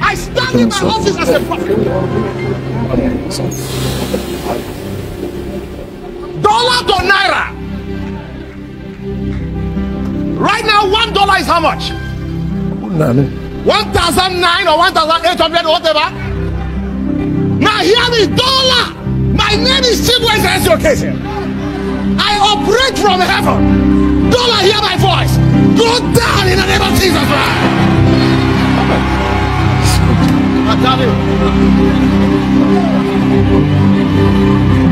I stand in my office as a prophet. Dollar to naira. Right now, one dollar is how much? One thousand nine or one thousand eight hundred or whatever. Now hear me, dollar. My name is Chibweze Education. I operate from heaven. Dollar, hear my voice. Go down in the name of Jesus Christ. Daddy.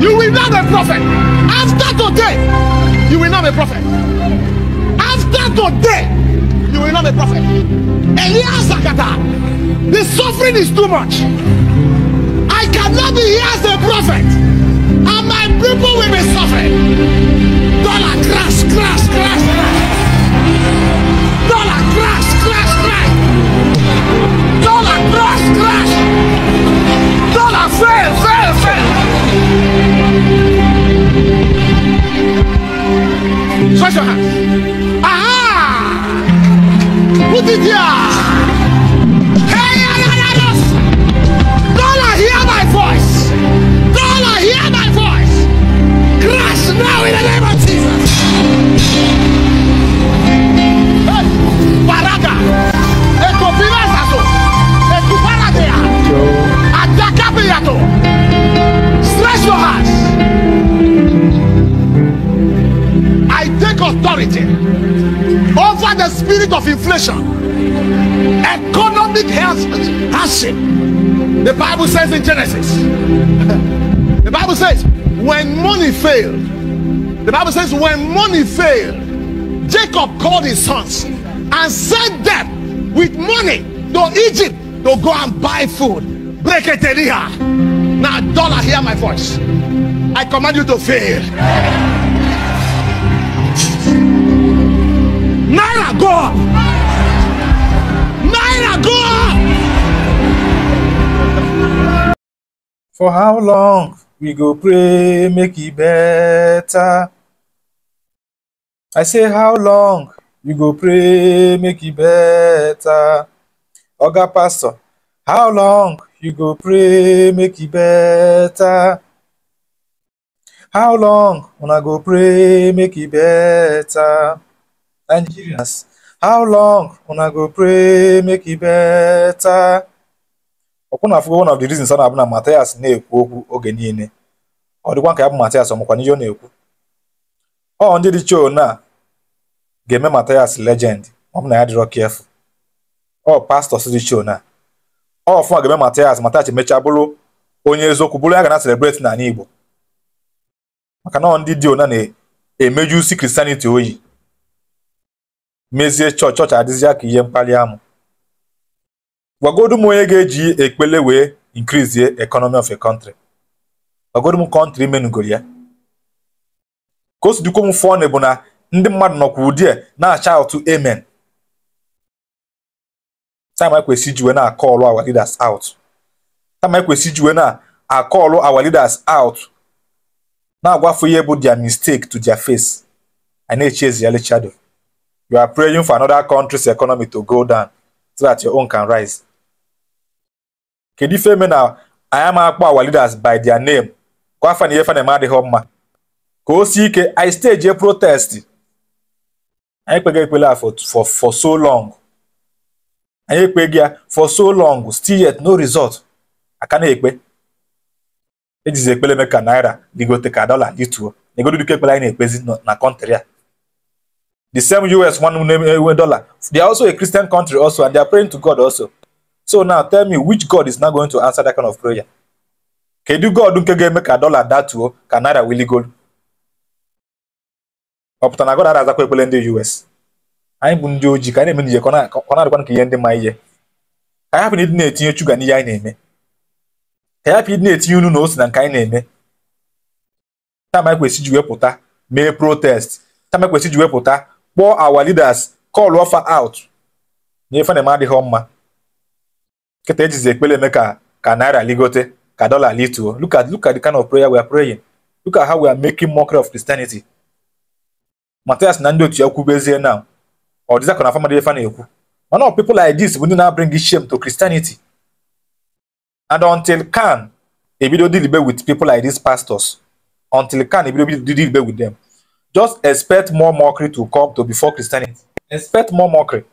You will not be a prophet. After today, you will not be a prophet. After today, you will not be a prophet. Elias Zakata, the suffering is too much. media. Dollar, hear my voice. Dollar, hear my voice. Crash now in the name of Jesus. Hey, Baraga. Eto Pilas ato. Stretch your hands. I take authority over the spirit of inflation. Economic hardship. The Bible says in Genesis. the Bible says when money failed. The Bible says when money failed, Jacob called his sons and sent them with money to Egypt to go and buy food. Break it in here. Now, dollar, hear my voice. I command you to fail. for how long we go pray make it better i say how long we go pray make it better oga pastor how long you go pray make it better how long I go pray make it better nigerians how long I go pray make it better ụkwụna afụgo one of the reasons ọ na-abụ na Matias na-ekwu okwu oge niile ọ dịkwa ka ya bụ Matias ọmụkwa n'ihe ọ na-ekwu ọ ndị dị choo na ga-eme Matias legend ọ bụ na ya dịrọ kefu ọ pastọs dị choo na ọ fụma ga-eme Matias Matias emechaa bụrụ onye eziokwu bụrụ ya ga na celebrate n'ala Igbo maka na ọ ndị dị ona na emeju si Christianity oyi mezie chọọchị chọọchị adịzi ya ka ihe mkpali amụ gwagodu m onye ga-eji ekpele wee increase economy of a country gwagodu m kọntrị menugoro ya ka o si dịkwa m fụọ bụ na ndị mmadụ nọkwa ụdị a na-acha atụ amen time anyị kwesị iji wee na-akọọlụ our leaders out time anyị kwesị iji wee na-akọọlụ our leaders out na-agwafu ihe bụ their mistake to their face a na-echi ezi ya lechado you are praying for another country's economy to go down so that your own can rise kedu ife eme na anyị ama akpọ awa leaders by their name ka afa na ihe fana eme adịghị mma ka o si ike anyị steji protest anyị kpeghị ekpele a for for so long anyị ekpeghị ya for so long still yet no result aka na-ekpe ejizi ekpele eme ka naira ligote ka dọla dituo egodo dike ekpele anyị na-ekpezi na kọntrị a the same us one nwe dollar they are also a christian country also and they are praying to god also so now tell me which god is not going to answer that kind of prayer kedu god nke ga-eme ka dọla datuo ka naira wiligolu ọ pụta na god azakwa ekpele ndị us anyị bụ ndị ojii ka anyị na-eme n'ihe ọ na-adịkwa nke ihe ndị ma ihe ka anyị hapụ ịdị na-etinye shuga n'ihe anyị na-eme ka anyị hapụ ịdị na-etinye unu na ose na nke anyị na-eme tam anyị ji wepụta mee protest tam anyị ji wepụta kpọọ our leaders call offer out na ife na-eme adịghị mma Kete is ekpele eme ka ka naira ligote ka dollar lituo. Look at look at the kind of prayer we are praying. Look at how we are making mockery of Christianity. Matthias na ndị otu ya kwubezie now. Ọ dịza ka na famadi efa na-ekwu. Mana ọ people like this bụ ndị na-abring shame to Christianity. And until can ebido dilibe with people like these pastors, until can ebido dilibe with them, just expect more mockery to come to before Christianity. Expect more mockery.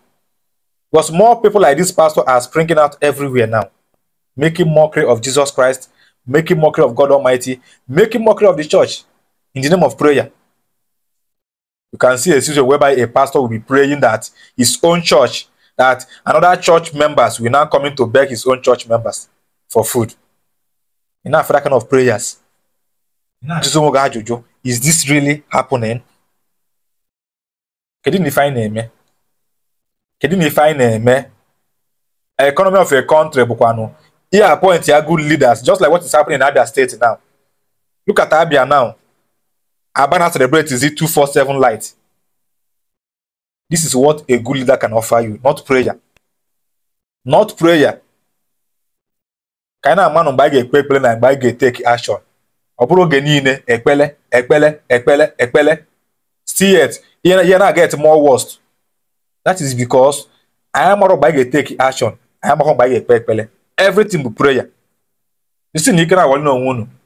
Because more people like this pastor are springing out everywhere now, making mockery of Jesus Christ, making mockery of God Almighty, making mockery of the church in the name of prayer. You can see a situation whereby a pastor will be praying that his own church, that another church members will now come in to beg his own church members for food. Enough for that kind of prayers. Is this really happening? Can you define name? kedu na ife anyị na-eme economy of a country bụkwanụ ihe appoint ya good leaders just like what is happening in Abia State now look at Abia now Abana celebrate is it 247 light this is what a good leader can offer you not prayer not prayer ka anyị na-ama na mgbe anyị ga-ekpe ekpele na mgbe anyị ga-eteki action ọ bụrụ oge niile ekpele ekpele ekpele ekpele still yet ihe na-aga et more worst that is because anyị mara mgbe anyị ga-eteki action anyị mara mgbe anyị ga-ekpe ekpele everything bụ prayer isi na ike na-agwali n'onwe unu